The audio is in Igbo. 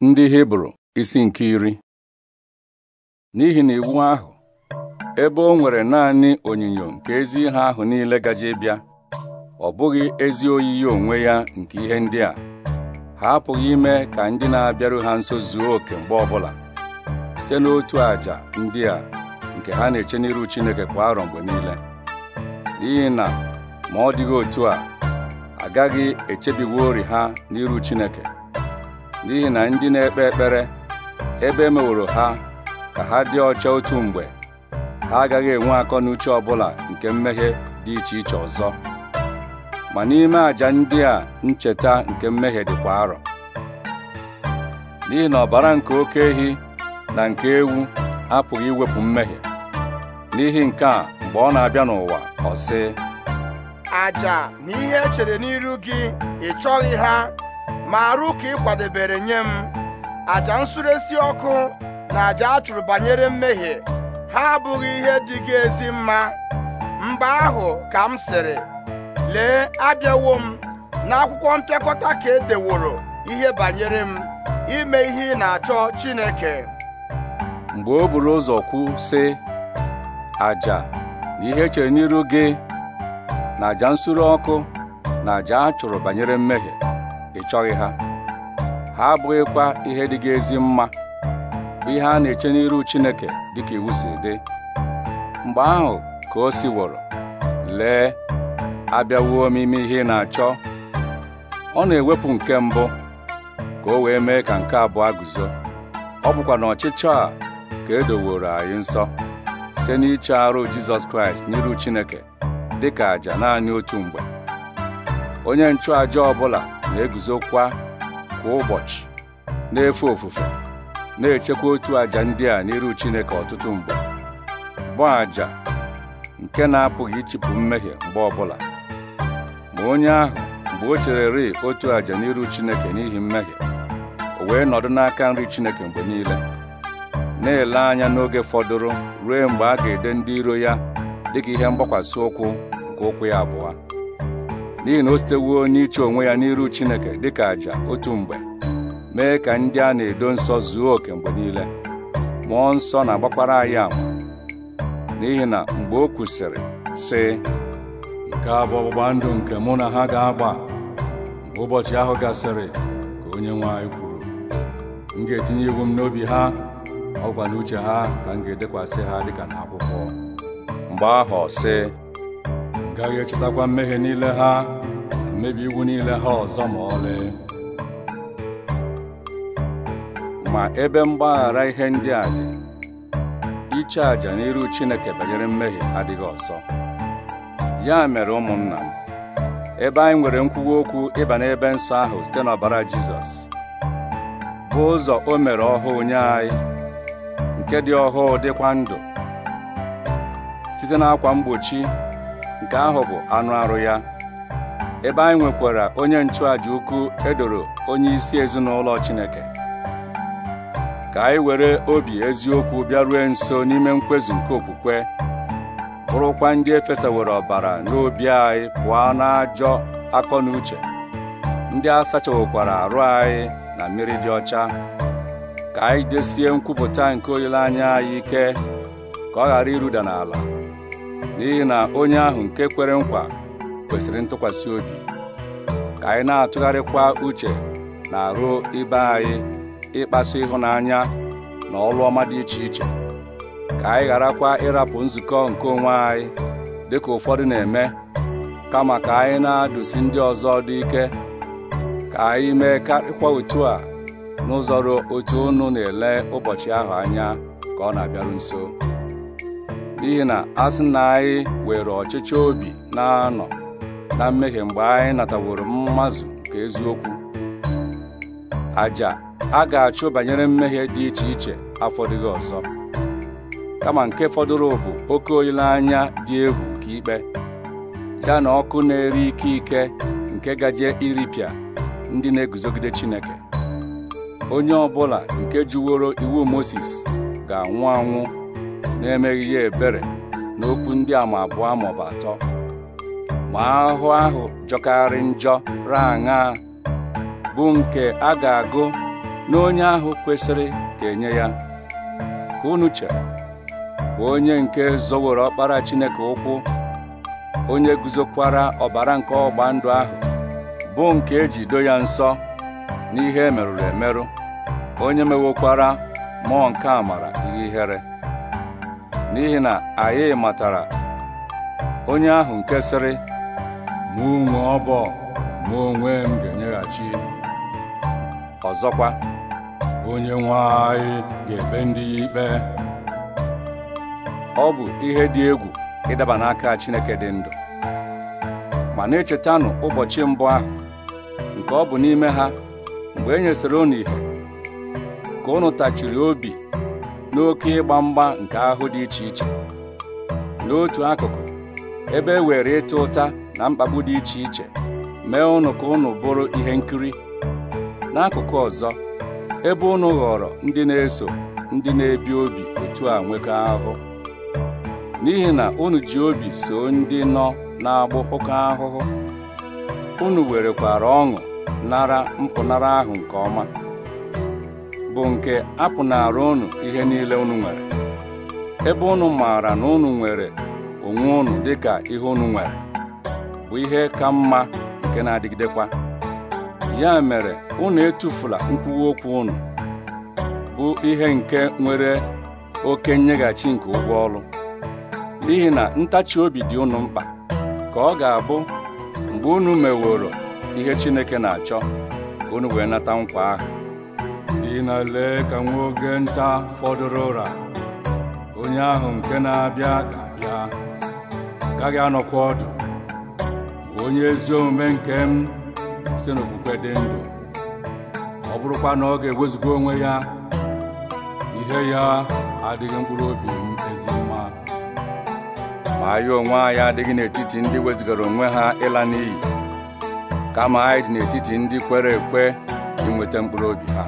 ndị hibru isi nke iri n'ihi na iwu ahụ ebe o nwere naanị onyinyo nke ezi ihe ahụ niile gaje bịa ọ bụghị ezi oyiyi onwe ya nke ihe ndị a ha apụghị ime ka ndị na-abịaru ha nso zuo oke mgbe ọbụla site n'otu àjà ndị a nke ha na-eche n'iru Chineke kwa arọ mgbe niile n'ihi na ma ọ dịghị otu a agaghị echebiwo ori ha n'iru Chineke n'ihi na ndị na-ekpe ekpere ebe meworo ha ka ha dị ọcha otu mgbe ha agaghị enwe akọ n'uche ọbụla nke mmehie dị iche iche ọzọ ma n'ime àjà ndị a ncheta nke mmehie dịkwa arọ n'ihi na ọbara nke oke ehi na nke ewu apụghị iwepụ mmehie n'ihi nke a mgbe ọ na-abịa n'ụwa ọ sị na ihe e n'iru gị ị chọghị ha ma arụ ka ị kwadebere nye m aja esi ọkụ na aja a chụrụ banyere mmehie ha abụghị ihe dị gị ezi mma mgbe ahụ ka m sịrị lee abịawo m n'akwụkwọ mpịakọta ka e deworo ihe banyere m ime ihe ị na-achọ Chineke mgbe o buru ụzọ kwu sị aja na ihe echere n'iru gị na aja nsure ọkụ na aja a chụrụ banyere mmehie ị chọghị ha ha abụghịkwa ihe dịga ezi mma bụ ihe a na-eche n'iru Chineke dịka iwu si dị mgbe ahụ ka o siworo lee abịawuo m ihe ị na-achọ ọ na-ewepụ nke mbụ ka o wee mee ka nke abụọ guzo ọ bụkwa na ọchịchọ a ka e doworo anyị nsọ site n'iche arụ Jizọs Kraịst n'iru Chineke dịka àjà naanị otu mgbe onye nchụàjà ọbụla na-eguzokwa kwa ụbọchị na-efe ofufe na-echekwa otu àjà ndị a n'iru Chineke ọtụtụ mgbe bụ àjà nke na-apụghị ichipụ mmehie mgbe ọbụla ma onye ahụ mgbe o chererị otu àjà n'iru Chineke n'ihi mmehie o wee nọdụ n'aka nri Chineke mgbe niile na-ele anya n'oge fọdụrụ ruo mgbe a ga-ede ndị iro ya dịka ihe mgbakwasị ụkwụ nke ụkwụ ya abụọ n'ihi na o sitewuo wuo iche onwe ya n'iru Chineke dịka àjà otu mgbe mee ka ndị a na-edo nsọ zuo oke mgbe niile mmụọ nsọ na-agbakwara anyị ama n'ihi na mgbe o kwusịrị sị nke a bụ ọgbụgba ndụ nke mụ na ha ga-agba mgbe ụbọchị ahụ gasịrị ka onye nwe anyị kwuru m ga-etinye iwu m n'obi ha ọgwa uche ha ka m ga-edekwasị ha dịka n'akwụkwọ mgbe ahụ sị m gaghị echetakwa mmehie niile ha niile ha ọzọ ma ọlị ma ebe mgbaghara ihe ndị a dị iche aja n'iru Chineke banyere mmehie adịghị ọsọ. ya mere ụmụnna ebe anyị nwere nkwuwa okwu ịba n'ebe nsọ ahụ site n'ọbara Jizọs bụ ụzọ o mere ọhụụ nye anyị nke dị ọhụụ dịkwa ndụ site n'akwa mgbochi nke ahụ bụ anụ arụ ya ebe anyị nwekwara onye nchụàja ukwu edoro onye isi ezinụlọ Chineke ka anyị were obi eziokwu bịarue nso n'ime nkwezu nke okwukwe bụrụkwa ndị efesawere ọbara n'obi anyị pụọ n'ajọ akọ na uche ndị a sachawokwara arụ anyị na mmiri dị ọcha ka anyị desie nkwupụta nke olileanya anyị ike ka ọ ghara iruda n'ala n'ihi na onye ahụ nke kwere nkwa kwesịrị ntụkwasị obi ka anyị na-atụgharịkwa uche na arụ ibe anyị ịkpasu ịhụnanya na ọlụ ọma dị iche iche ka anyị gharakwa ịrapụ nzukọ nke onwe anyị dị ka ụfọdụ na-eme kama ka anyị na-adụsi ndị ọzọ dị ike ka anyị mee karịkwa otu a n'ụzọ ruo otu unu na-ele ụbọchị ahụ anya ka ọ na-abịaru nso n'ihi na asị na anyị were ọchịchọ obi na-anọ na mmehie mgbe anyị nataworo mmazụ nke eziokwu aja a ga-achụ banyere mmehie dị iche iche dịghị ọzọ kama nke fọdụrụ bụ oke olileanya dị egwu ka ikpe ya na ọkụ na eri ike ike nke gaje iripịa ndị na-eguzogide Chineke onye ọ bụla nke jụworo iwu moses ga-anwụ anwụ na-emeghị ya ebere n'okwu ndị ama abụọ maọbụ atọ ma ahụ ahụ jọkarị njọ raa raṅa bụ nke a ga-agụ n'onye ahụ kwesịrị ka enye ya unuche bụ onye nke zọworo ọkpara Chineke ụkwụ onye guzokwara ọbara nke ọgba ndụ ahụ bụ nke eji do ya nsọ n'ihe e merụrụ emerụ onye mewokwara mmụọ nke amara ihe ihere n'ihi na anyị matara onye ahụ nke Mụ onwe ọbọ ma onwe m ga-enyeghachi ọzọkwa onye nwe anyị ga-ekpe ndị ya ikpe ọ bụ ihe dị egwu ịdaba n'aka Chineke dị ndụ ma na-echetanụ ụbọchị mbụ ahụ nke ọ bụ n'ime ha mgbe e nyesịrị unu ihe ka unu tachiri obi n'oke ịgba mgba nke ahụ dị iche iche n'otu akụkụ ebe e were ịta ụta na mkpagbu dị iche iche mee ụnụ ka ụnụ bụrụ ihe nkiri n'akụkụ ọzọ ebe ụnụ ghọrọ ndị na-eso ndị na-ebi obi otu a nwekọ ahụhụ n'ihi na unu ji obi so ndị nọ na-agbụpụkọ ahụhụ unu werekwara ọṅụ nara mpụnara ahụ nke ọma bụ nke apụnara unu ihe niile unu nwere ebe unu maara na unu nwere onwe unu dịka ihe unu nwere bụ ihe ka mma nke na-adịgidekwa ya mere unu etufula nkwuwa okwu unu bụ ihe nke nwere oke nyeghachi nke ụgwọ ọrụ n'ihi na ntachi obi dị unu mkpa ka ọ ga-abụ mgbe unu meworo ihe Chineke na-achọ ka unu wee nata nkwa ahụ "Ị na lee ka nwa oge nta fọdụrụ ụra onye ahụ nke na-abịa ga-abịa gaghị anọkwa ọdụ onye ezi omume nke m si n'okwukwe dị ndụ ọ bụrụkwa na ọ ga-ewezuga onwe ya ihe ya adịghị mkpụrụ obi m ezi mma ma anyị onwe anyị adịghị n'etiti ndị wezigara onwe ha ịla n'iyi kama anyị dị n'etiti ndị kwere ekwe inweta mkpụrụ obi ha